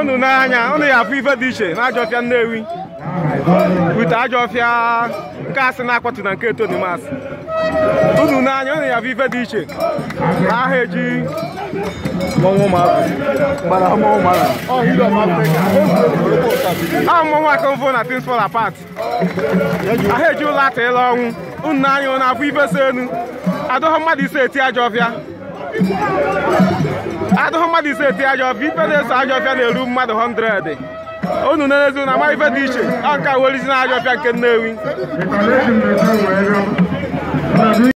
unu n'anya unu ya afụ ife dị iche na ajọfịa Nnewi ute ajọfịa nke asị na-akpọtụ na nke Tony Mas unu n'anya unu ya afụ ife dị iche na aha eji ahụ mụnwa aka mfụ na things fall apart aha eji ụlọ atụ ịla ọnwụ unu n'anya unu afụ ife so enu adọghọ mmadụ ise eti ajọfịa mmadụ ise eti ajọfịa ife na-eso ajọfịa na-eru mmadụ 100 unu na ezi na amaghị ife dị iche ọ nke awelizi na ajọfịa nke Nnewi